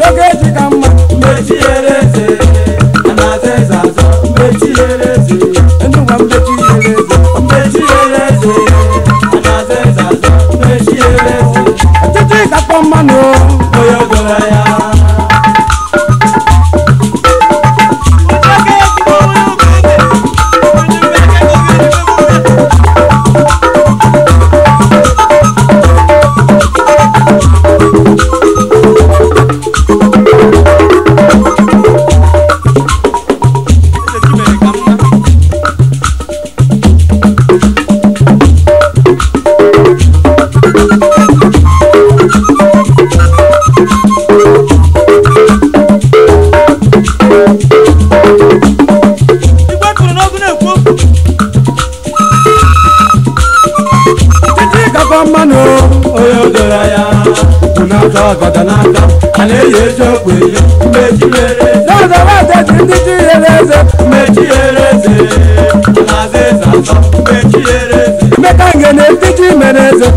yóò kéjì kan mọ̀. ọgọdọnaka a na-eyi eji okpu eyi mmeji mere n'ụzọ nwata ji ndị ji yere eze mmeji yere eze na-aza eze atọ mmeji eze emeka nge na ndị ji mere eze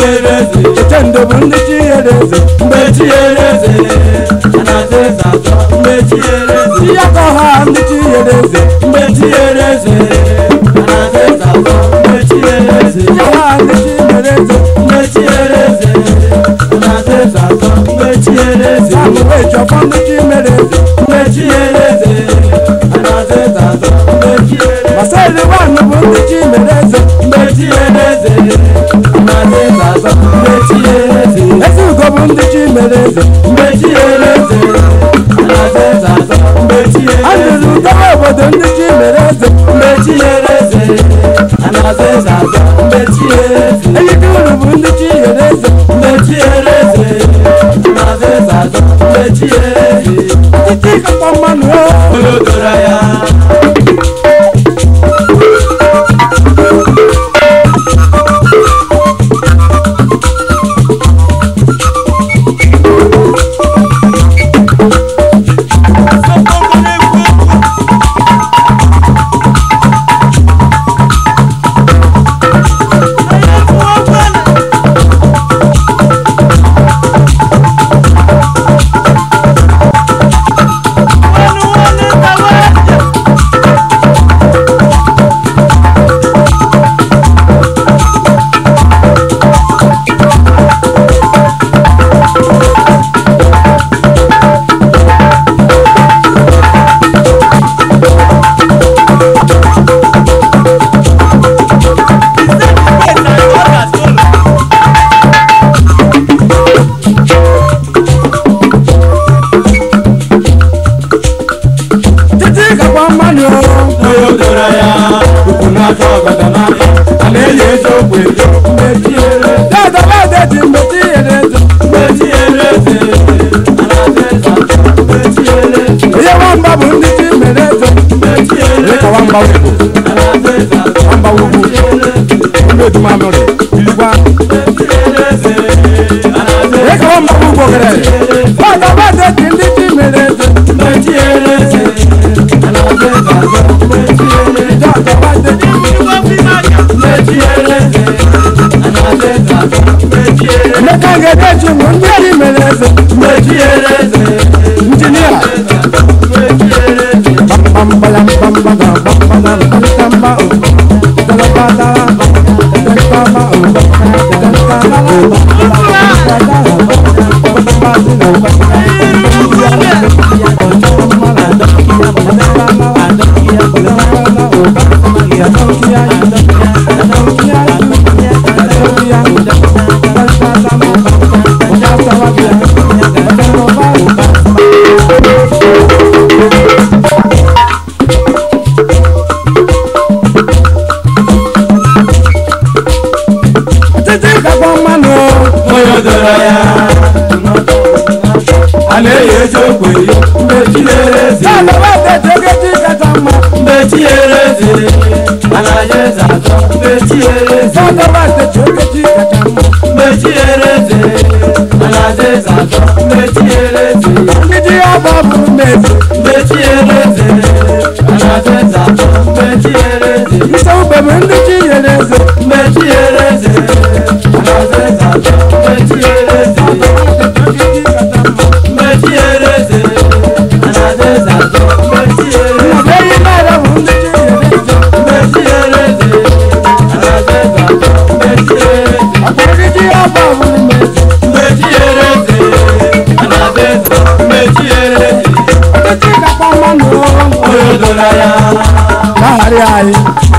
ereze etendo bundichi ereze mbechi ereze anazeza zo mbechi ereze yakoha ndichi ereze mbechi ereze anazeza zo mbechi ereze yakoha ndichi ereze mbechi ereze anazeza zo eleze mbechi eleze alaze zaza mbechi eleze azụzụ ntaba obodo ndị ji mere eze mbechi eleze alaze zaza mbechi eleze eyike unu bụ ndị ji mere eze mbechi eleze alaze zaza mbechi eleze ọchịchị ịkakwa mmanụ o amba wogo ndo tuma mole biligwa eka amba wogo kere bada bada tindi timere metieleze anabeba metieleze bada bada tindi wafimanya metieleze anabeba metieleze nekangere chungu ndiye limeleze metieleze injinia Thank you. lẹ́yìn ìjókòó yìí méjì lérè sí. sábà wà tètè kejì kẹta mọ. méjì lérè sí. àlàyé sàtọ méjì lérè sí. sábà wà tètè kejì kẹta mọ. méjì lérè sí. àlàyé sàtọ méjì lérè sí. gidi ọba láyà. Láàárín àyè.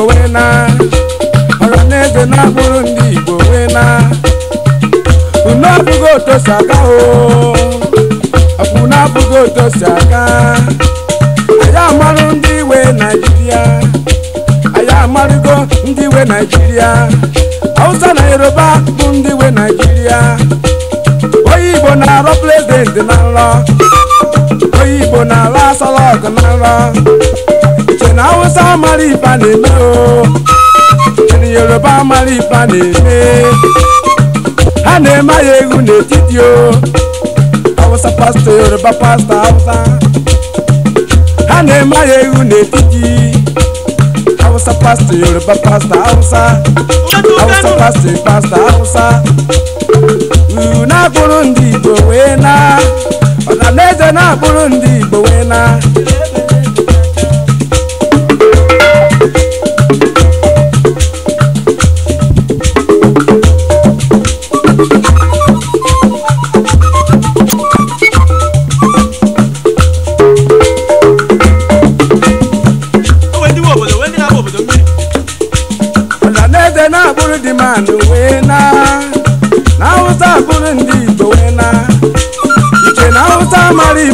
Igbo wee na eze na-abụrụ ndị Igbo wee na unu abụghị otu si aga o ọbụ na abụghị otu si aga anyị amarụ ndị iwe Naijiria. anyị amarụgo ndị iwe Naijiria. Hausa na Yoruba bụ ndị iwe Naijiria. onye Igbo na-arọ prezidenti na nrọ onye Igbo na-arọ asọlọgụ na nrọ ènìyàn haúsá máa rí ìbàlẹ̀ mi o ènìyàn yorùbá máa rí ìbàlẹ̀ mi a lè má yẹ ewu n'etiti o haúsá pásítọ̀ yorùbá pásítọ̀ haúsá a lè má yẹ ewu n'etiti haúsá pásítọ̀ yorùbá pásítọ̀ haúsá haúsá pásítọ̀ pásítọ̀ haúsá uru na-akpụrụ ndị igbo wee na ọnanaeze na-akpụrụ ndị igbo wee na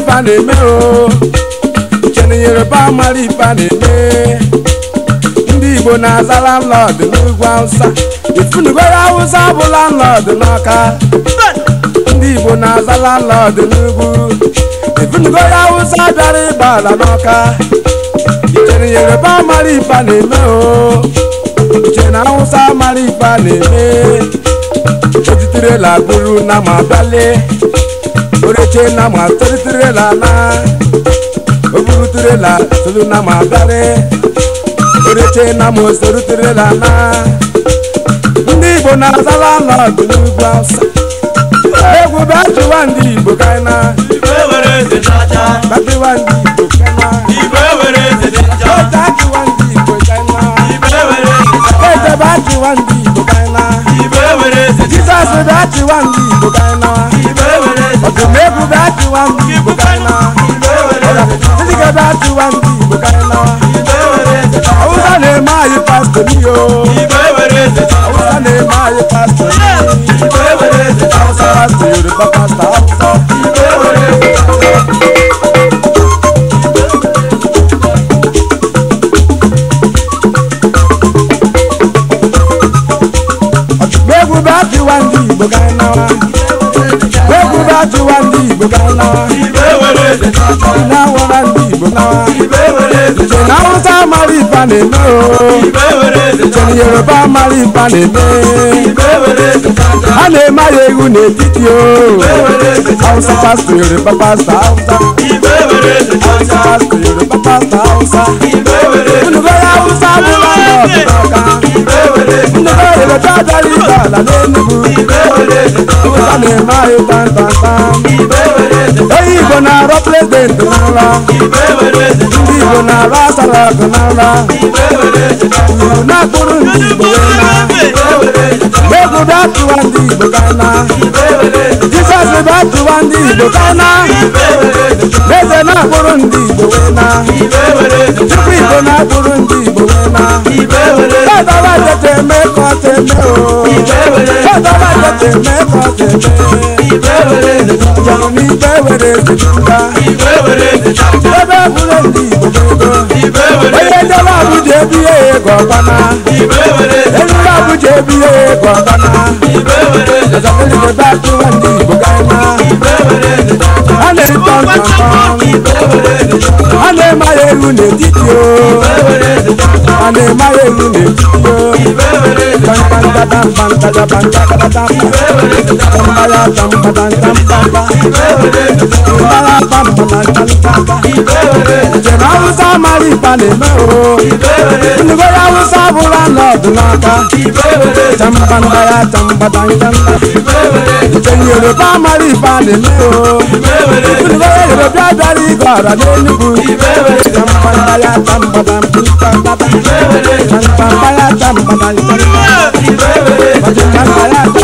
ba na-eme o cheni yoruba mara iba na-eme ndị igbo na-aza landlọd n'ugwu awụsa ifunugoro awụsa bụ landlọd n'ọka ndị igbo na-aza landlọd n'ugwu ifunugoro awụsa bịara ịgba ala n'ọka cheni yoruba mara iba na-eme o cheni awụsa mara iba na-eme ejitirela bụrụ na ma bịalie oreche na ma toritere la la oburutere la tolu na ma dare oreche na ma osorutere la na, ndị igbo na-azala nọdụ n'ugwu awụsa egwu bịa chịwa ndị igbo kaina batiwa ndị igbo kaina ọchịwa ndị igbo kaina ejebe achịwa ndị igbo kaina jizọs bịa chịwa ndị igbo kaina ọdún mẹ́kù bá ti wá ń bí ìbò kárí náà títí kẹ́ bá ti wá ń bí ìbò kárí náà awúsá lè má yí pásítọ̀ mi o awúsá lè má bá ti wá ní ìgbéga ńlá. ìbéwèrè lè tọ́jọ́. ìnáwó rà ní ìgbéga. ìbéwèrè lè tọ́jọ́. ìnáwó sá máa rí ìbànú mi o. ìbéwèrè lè tọ́jọ́. ìjọba yorùbá máa rí ìbànú mi. ìbéwèrè lè tọ́jọ́. a lè má yẹ ewu n'ètìtì o. ìbéwèrè lè tọ́jọ́. hausa pásítọ̀ yorùbá pásítọ̀ hausa. ìbéwèrè lè tọ́jọ́. hausa pásítọ̀ yorùbá pásítọ̀ hausa. ìbéwèrè lè tọ́jọ́. olùgbé Kusani mayo tan tan tan Hey Igbo na-arọ prezidenti n'ala Ndị Igbo na-arọ asaraku n'ala Igbo na-akpụrụ ndị Igbo na Egwu bịa tụwa ndị Igbo kana Jizọs bịa tụwa ndị Igbo kana Eze na-akpụrụ ndị Igbo na Chukwu Igbo na-akpụrụ ndị Igbo ma. ìfẹ́ wẹ̀rẹ̀. bẹ́ẹ̀ bá tètè mẹ́kọ̀ tèmi o. ìfẹ́ wẹ̀rẹ̀. bẹ́ẹ̀ bá tètè mẹ́kọ̀ tèmi. ìfẹ́ wẹ̀rẹ̀. ìyàwó mi ìfẹ́ wẹ̀rẹ̀ ti dúdà. ìfẹ́ wẹ̀rẹ̀ ti dúdà. bẹ́ẹ̀ múlẹ̀ ní ìgbòkègbò. ìfẹ́ wẹ̀rẹ̀. oyè jọba àbújá bí èyí gọ̀ọ̀bánà. bí èyí gọ̀ọ̀bánà. ìfẹ́ wẹ̀rẹ̀. ìjọba ìjọba tó wà ní ìgbòkègbò. ìfẹ́ wẹ̀rẹ̀ ti ale ma ye lu le titi o. Ande maye mune Bantanda bantanda da bantanda da Tambaya tamba dan tamba Tambaya bamba dan tamba Jema usa mari pane meo Nugo ya usa Irobia dari kora lenugu Tampamba ya tambada Tampamba ya tambada Tampamba ya tambada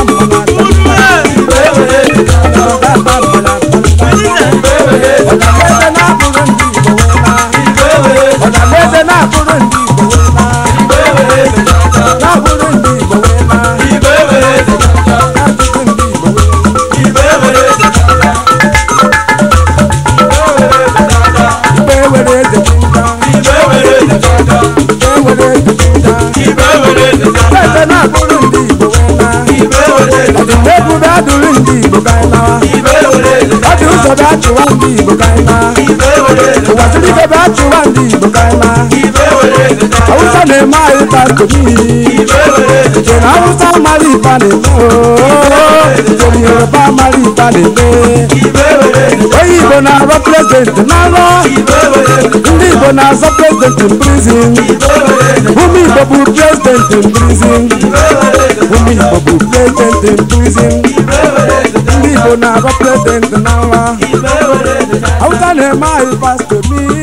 ke ba chụwa ndị igbo ka ịma ụwa siri ke ba chụwa ndị igbo ka ịma awụsa na-eme anyị pastọ n'ihi nke na awụsa mara ipa na-eme nke na yoruba mara ipa na-eme onye igbo na-arọ prezident n'arọ ndị igbo na-azọ prezident prizin ụmụ igbo bụ prezident prizin ụmụ igbo bụ prezident prizin ndị igbo na-arọ prezident lè má ìbá tèmi.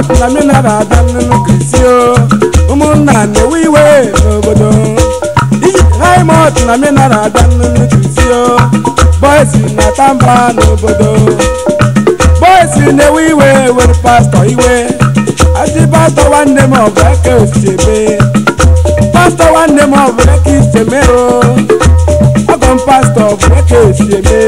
ọtụlamina ga-ada nnụnụ krisio ụmụnna na-ewe iwe n'obodo ijiraima ọtụlamina ga-ada nnụnụ krisio bọysi na-ata mba n'obodo bọysi na-ewe iwe were pastọ iwe adị pastọ nwanne m ọbụ eke osiebe pastọ nwanne m ọbụ eke isemero ọgọ m pastọ bụ eke osiebe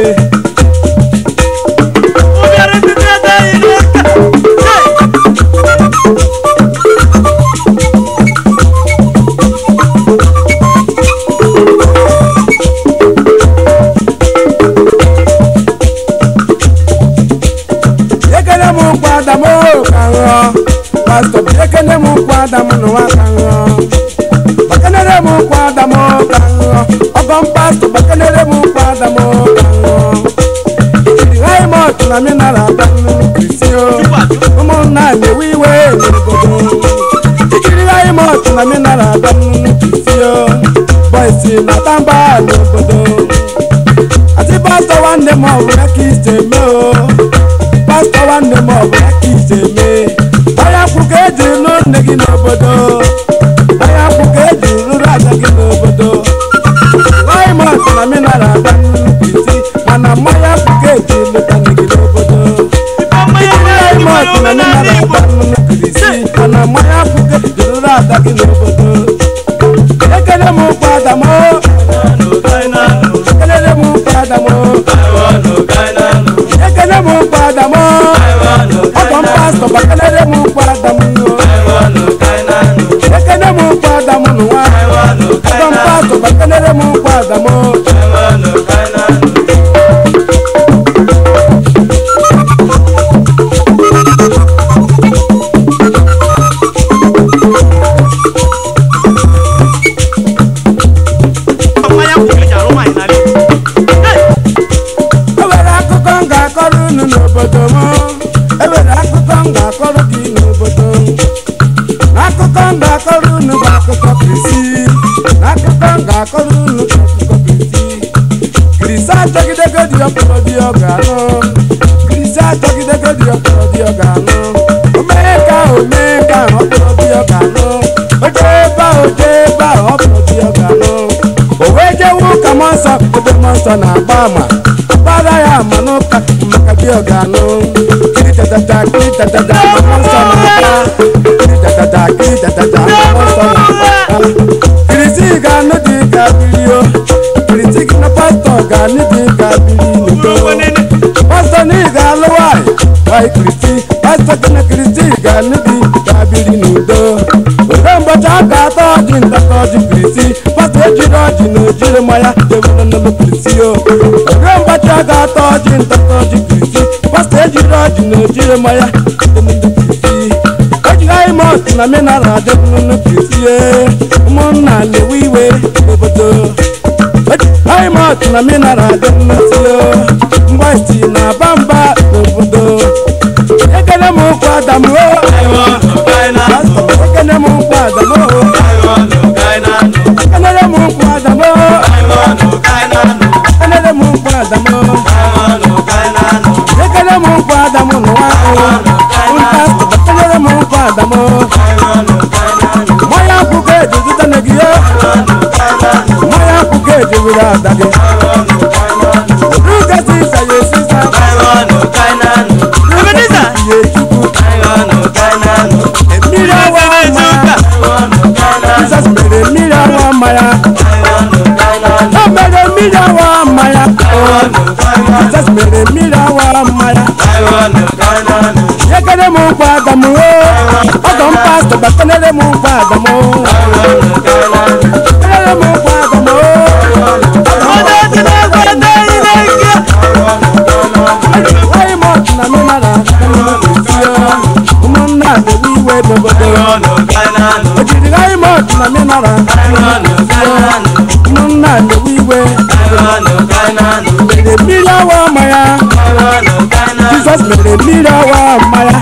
adamu n'ụwa ka ṅụọ bakanere m ụkwụ adamu ka ṅụọ ọgọ mpastọ bakanere m ụkwụ adamu ka ṅụọ jiri haimọt na minara adanụ krisio ụmụnna anyị ewe iwe n'obodo jiri haimọt na minara adanụ krisio bọisi na tamba n'obodo atị pastọ nwanne m ọbụla ka isi eme nwanne gị n'obodo ahịa akwụ ka eji rụrụ ada gị n'obodo laimọt na mineral ada nnukwu isi mana mmanya akwụ ka eji lụta gị n'obodo laimọt na mineral ada nnukwu isi mana mmanya akwụ ka eji rụrụ ada gị n'obodo ekele m ụkwa adamo ekele m ụkwa adamo ọgọ m pastọ bakala పక్కనరము ọkọ na-agba ama gbara ya ama n'ụka maka di ọganụ kiri tatata kiri tatata mama nsọ na-agba kiri tatata na-agba kirisi ga-anụ dị ka birio kirisi gị na pastọ ga-anụ dị ka biri pastọ na ị ga-alụ nwanyị nwanyị kirisi pastọ gị na kirisi ga-anụ dị ka biri n'udo were mgbọcha aka atọ ọjị ntatọ ọjị kirisi ejiri ọjị na ojiri mmanya jewere nnụnụ kirisi o oge mgbachi ọ ga-atọ ọjị ntatọ ọjị kirisi pasta ejiri ọjị na ojiri mmanya jewere kirisi ejighị mọt na mineral adị nnụnụ kirisi ụmụnna na-ewe iwe obodo ejighị mọt na mineral adị nnụnụ mgbachi na bamba obodo ekele m ụkwụ adamuo damo maya kuke juju tane giyo maya kuke jibira dage Ruga si sa ye si sa Kainanu kainanu Ebeneza Ye chuku Kainanu kainanu Emira wa maya Kainanu kainanu Jesus bere mira wa maya Kainanu kainanu Obere mira wa maya Kainanu kainanu Jesus bere mira wa maya Kainanu kainanu Yekere mu kwa damu o mu pastor ba konere mu father mo konere mu father mo odo tele gwende ile ke why much na me mara umun na de wi we bogodo ojiri why much na me mara umun na de wi we mere mirawa maya Jesus mere mirawa maya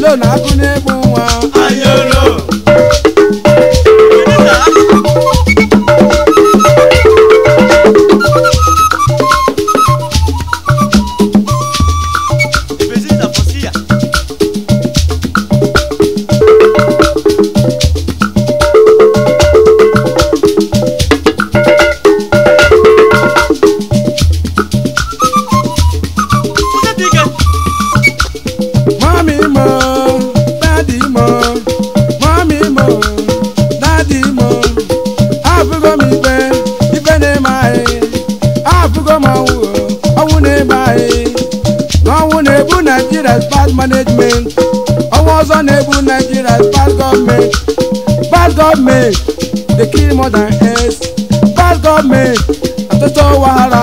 lónà kún ní mú wọn. ayé. Naijiria n'ọnwụ na-ebu Naijiria bad management ọnwa ọzọ na-ebu Naijiria bad government. bad government, dey kill more than heads bad gọọmenti ọtụtụ wahala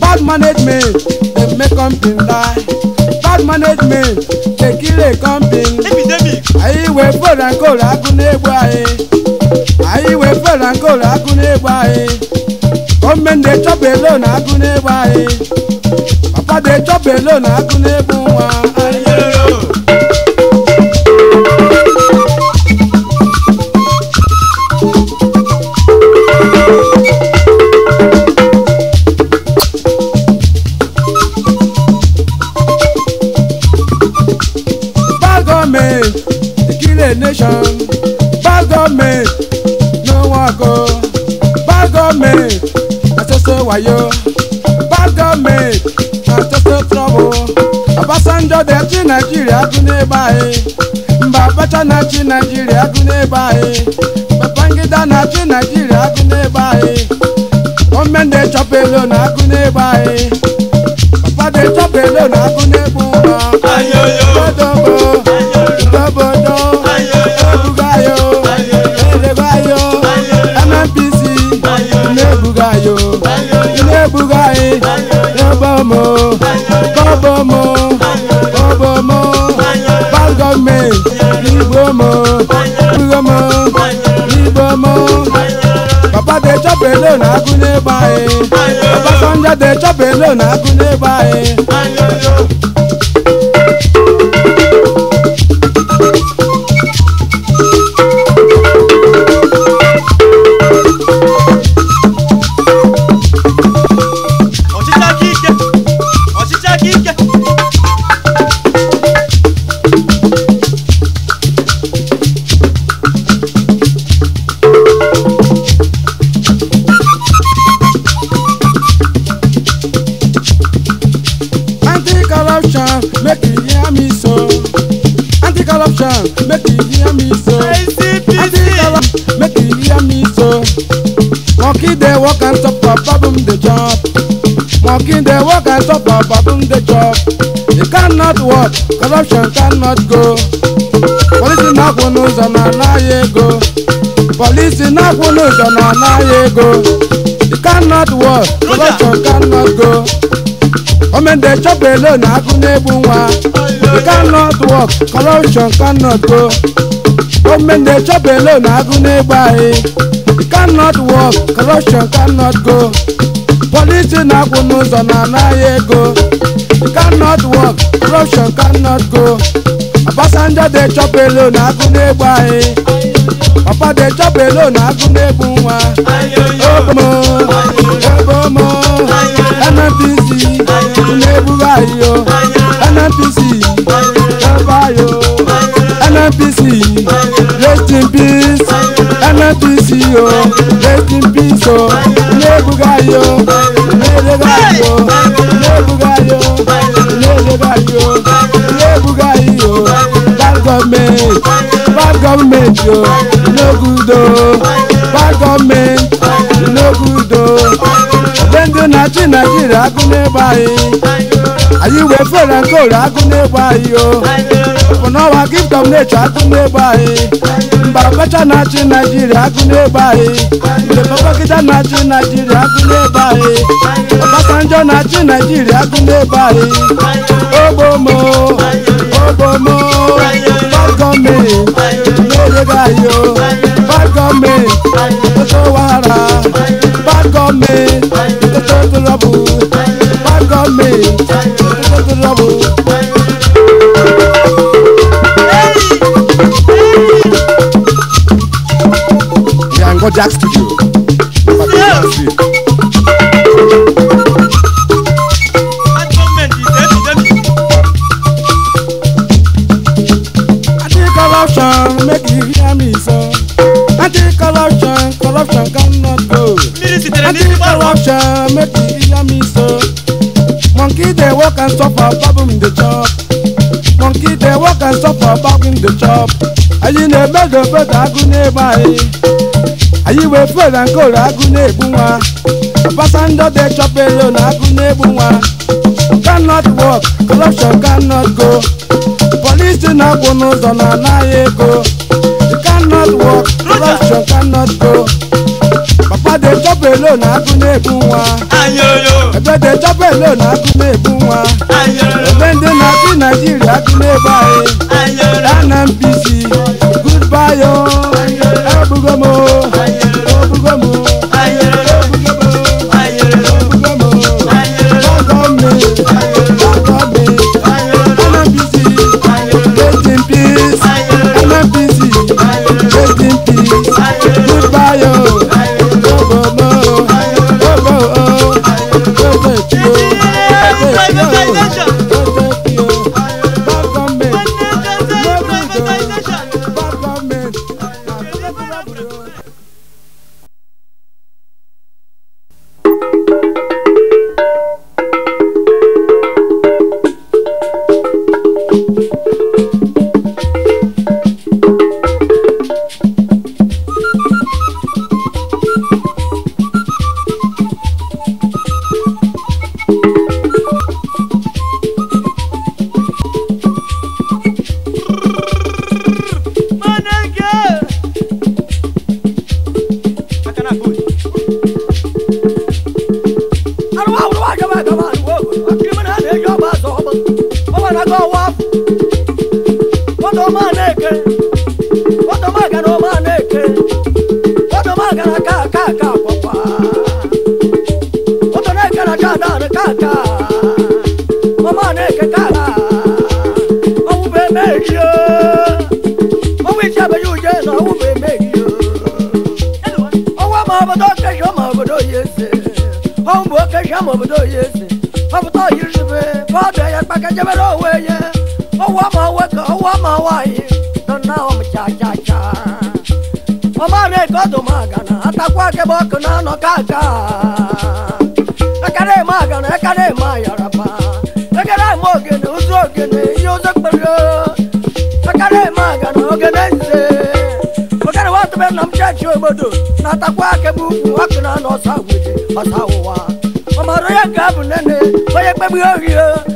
bad management dey make company die bad management dey kill a company anyị wee fọrọ nkolu agụ n'egbu anyị anyị wee fọrọ nkolu agụ n'egbu anyị gọọmenti dey chop alone agụ n'egbu anyị adé jọ́bẹ̀ lónà akúnlé fún wa. ayé. Ọbásanjọ́ dẹ̀ tí Nàìjíríà tún dé báyìí Babacha náà tí Nàìjíríà tún dé báyìí Babangida náà tí Nàìjíríà tún dé báyìí Gọọmenti dey chop alone náà tún dé báyìí Papa dey chop alone náà tún dé bú wa. Ayoyo Gbọdọ̀gbọ̀ Gbọdọ̀gbọ̀ Ebugayo Elebayo MNPC Inebugayo Inebugayo Yọba ọmọ. alone na Akunle buy. Obasanjo dey chop alone na Akunle work and top for problem dey chop mocking dey work and top for problem dey chop e cannot work corruption cannot go Police na-akwụ n'ụzọ na anaghị ego Police na-akwụ n'ụzọ na anaghị ego They cannot work corruption cannot go omen de chop alone na agụ na-egbu cannot work corruption cannot go omen de chop alone na agụ na cannot work corruption cannot go policy na-akwụ n'ụzọ na anaghị ego cannot work corruption cannot go Obasanjo dị chọpụ elu na agụ na-egbu anyị papa dị chọpụ elu na agụ na-egbu nwa e. obomo obomo NNPC na anyị yo NNPC ebe ayo NNPC rest in peace NNPC o rest in peace o Ilebugayi o Ilebugayi o Ilebugayi o Ilebugayi o Ilebugayi o bad government bad government yo. no good o oh, bad government no good o. Oh ndị na-achị Naịjirịa agụ n'ebe anyị anyị wee fere nke ore agụ n'ebe anyị o bụ n'ọnwa kingdom na-eche agụ n'ebe anyị mba ọkacha na-achị Naịjirịa agụ n'ebe anyị mgbe babagida na-achị Naịjirịa agụ n'ebe anyị Ọbasanjọ na-achị Naịjirịa agụ n'ebe anyị ogbomo ogbomo gọọmenti n'oge o gọọmenti ofe wara Kojak Studio. Anti-corruption, make you hear me so. Anti-corruption, corruption cannot go. Anti-corruption, make you hear me so. Monkey they walk and suffer, problem in the chop. Monkey they walk and suffer, problem in the chop. Ayi na-eme dobe ka agụ n'ebe anyị wefụ na nkoro agụ na-egbu nwa pasandode chọpere na agụ na-egbu nwa cannot work corruption cannot go polisi na-akwụ n'ụzọ na anaghị ego cannot work corruption cannot go papa de chop alone agụ na-ebu nwa ebe dey chop alone agụ na-ebu nwa ebe ndị na-achị naijiria agụ na-ebu anyị na NNPC goodbye o ebugo m o akajabara owenye owa ma weka owa ma wayi donna om cha cha cha omare kodo magana atakwa ke bok na no kaka akare magana akare ma yaraba akare mogene uzogene yozakparo akare magana ogene nze akare watu be nam cha chi obodo na atakwa ke bu wak na no sawuje ọsa ụwa ọmọrọ ya ga bụ nene onye kpegbu ohi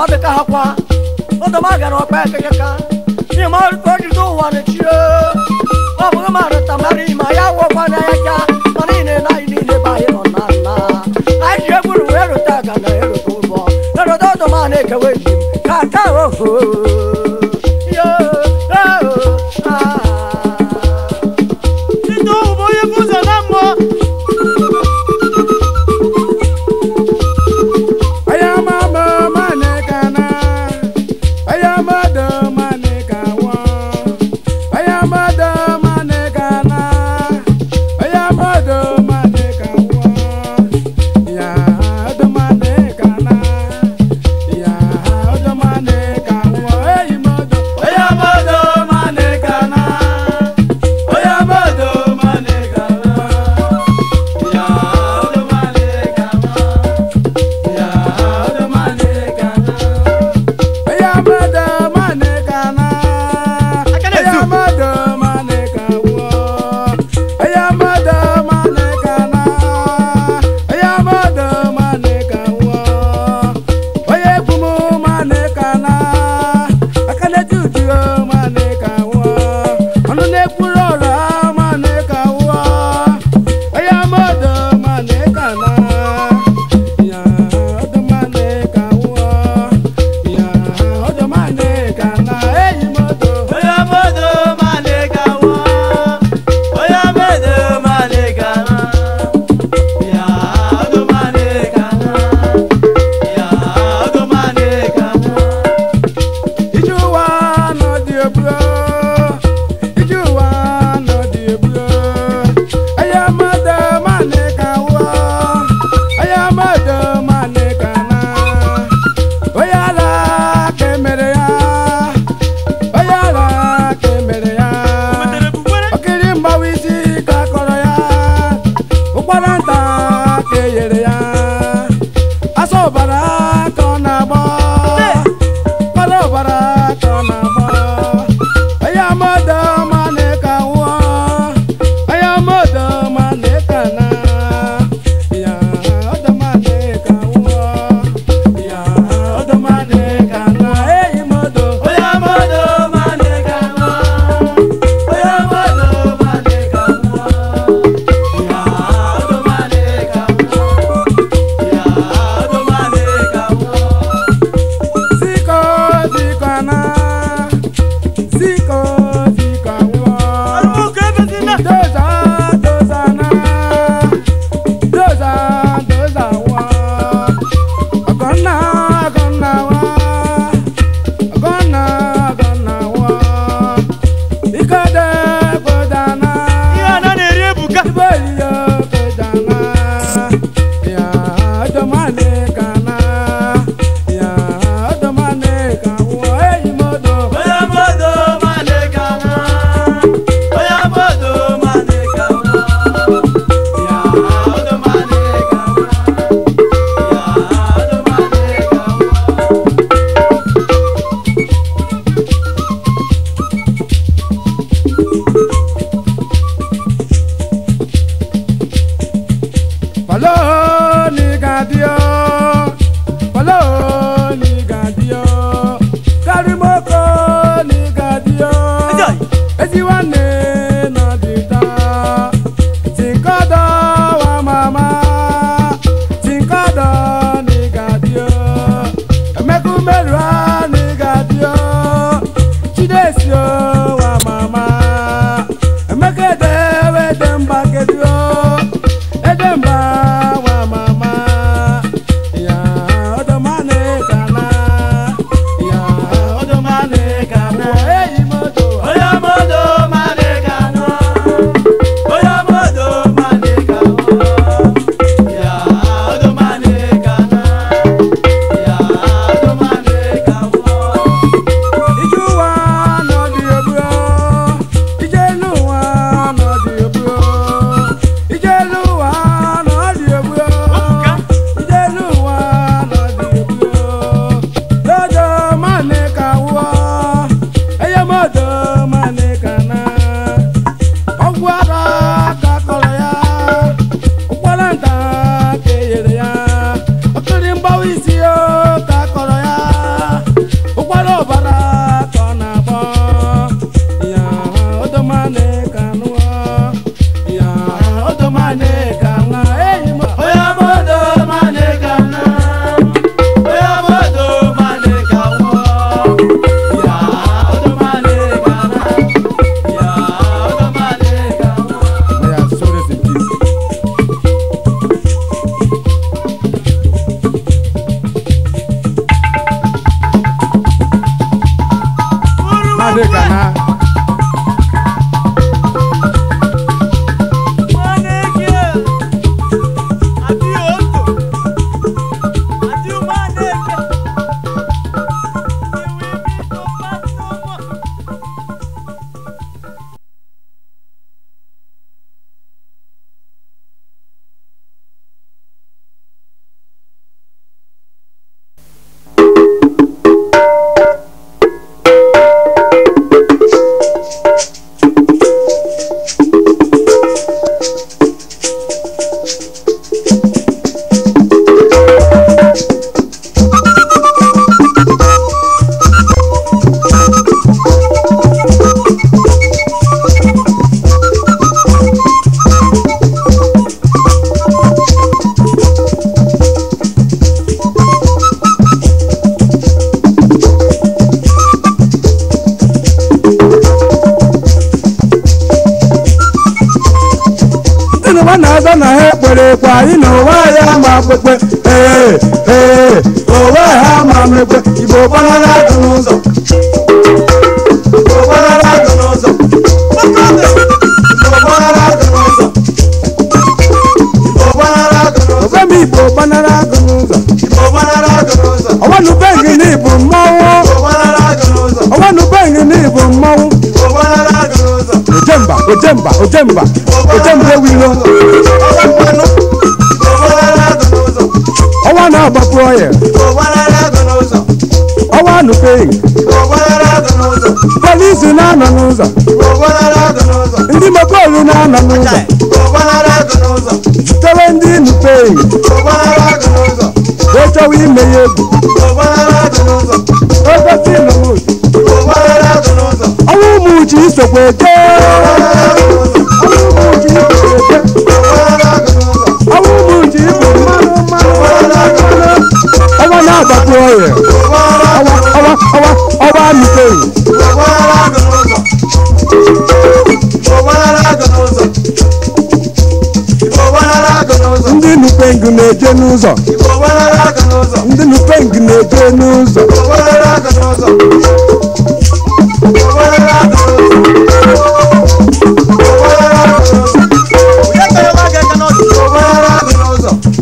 ọ dị ka ha kwa ụdọma gara ọkpa ekekeka ihe ma ọ dị ụwa na-echie ọ bụghị ma rụta mara ihe ma ya wụọkwa na ya ka mana ị na-ele anyị niile be anyị nọ na nna anyị ji egwuru wee rụta aga na erụta ụbọ erụta ụdọma na-ekewe agba na ha ekpere kwa anyị na onwe anyị ama akpụkpe ee ee onwe ha ama mekpe igbo gbanara adụ n'ụzọ igbo gbanara adụ n'ụzọ igbo gbanara adụ n'ụzọ igbo gbanara adụ n'ụzọ ojemba ojemba ojemba ojemba ewiro ọwa na-agbapụ ọya ọwa nụpeghị polisi na-anọ n'ụzọ ndị mekolu na-anọ n'ụzọ zutere ndị nụpeghị echọwa ime ya egwu ogosi ọnwa ụmụ uche isokwa eke na-eje n'ụzọ ndị nupeng na-eje n'ụzọ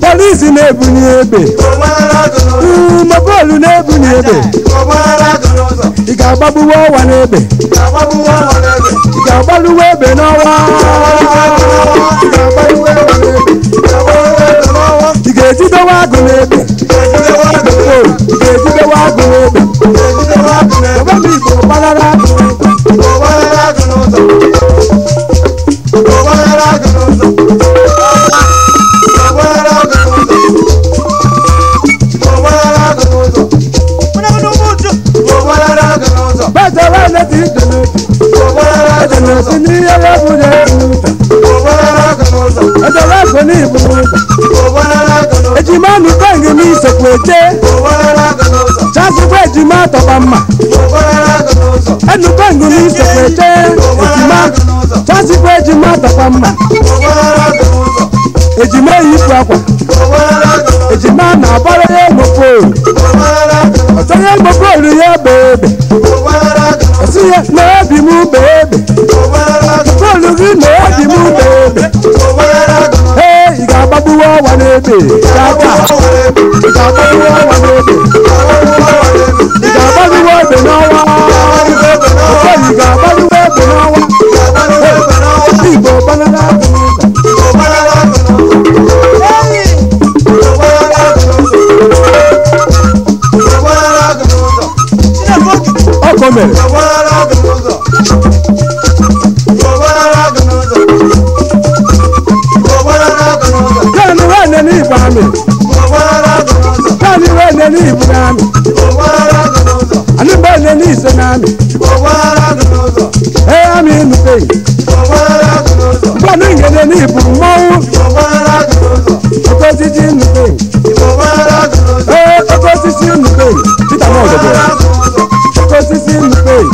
polisi na-ebunye egbe mobolu na-ebunye egbe ị ga-agbagbuwe ọwa n'egbe ị ga-agbaluwe egbe n'ọwa ìdèjì tó wá gùn lébè ìdèjì tó wá gùn lébè ìdèjì tó wá gùn lébè ìdèjì tó wá gùn lébè bàbá mi ìbò bálára gùn ìbò bálára gùn ló sọ ìbò bálára gùn ti dùnú. Ẹ̀dùnú sí ní ẹlẹ́bùn lẹ́nu. Ẹ̀dùn wá kò mi kọ́ìnì mi ìsòkò èjé. jásù wéèdì má tọ̀pọ̀ mà. ẹnu kọ́ìnì mi ìsòkò èjé. èjìmá jásù wéèdì má tọ̀pọ̀ mà. èjìmá èyí fún akwa. èjìmá nà àbọ̀rọ̀ yẹ gbogbo. ọ̀sán yẹ gbogbo ìrìn yẹ bèbè. ọ̀sán yẹ lọ́ọ́ bì mú bèbè. lóde. ìjàmbá ti ìjàmbá ti wọ́ọ̀dẹ̀ lóde. ìjàmbá ti wọ́ọ̀dẹ̀ náà wá. ọ̀pọ̀ ìjàmbá ti wọ́ọ̀dẹ̀ náà wá. ìbò bánálá ọkọ mẹ́rin. mbele ni ibunami ani mbele ni isenami eyami nupei mbani ngede ni iburu mmawu okosisi nupei ee okosisi nupei tita mọ ọdọdọ okosisi nupei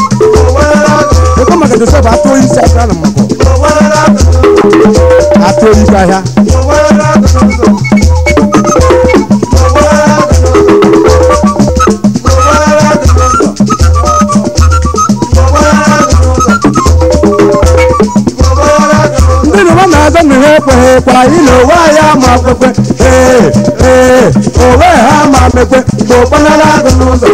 ekomakete sọfọ atoyi si asra na mọkọ atoyi kahia. agonu hekwe hekwara ile owe anyị ama kwekwe ee ee owe ha ma mekwe ma okpanala agụ n'ụzọ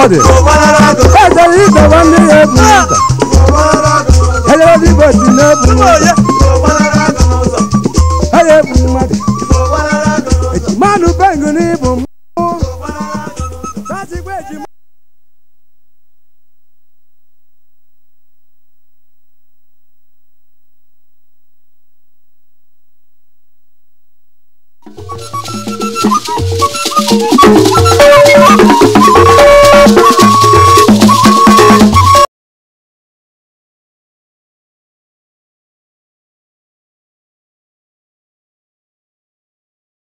God. Ẹsẹ̀ yìí tẹ̀wọ́ ní ebu ìta. Ẹyẹ ló dìbò sí ní ebu. Ẹyẹ ebu mọ̀tò.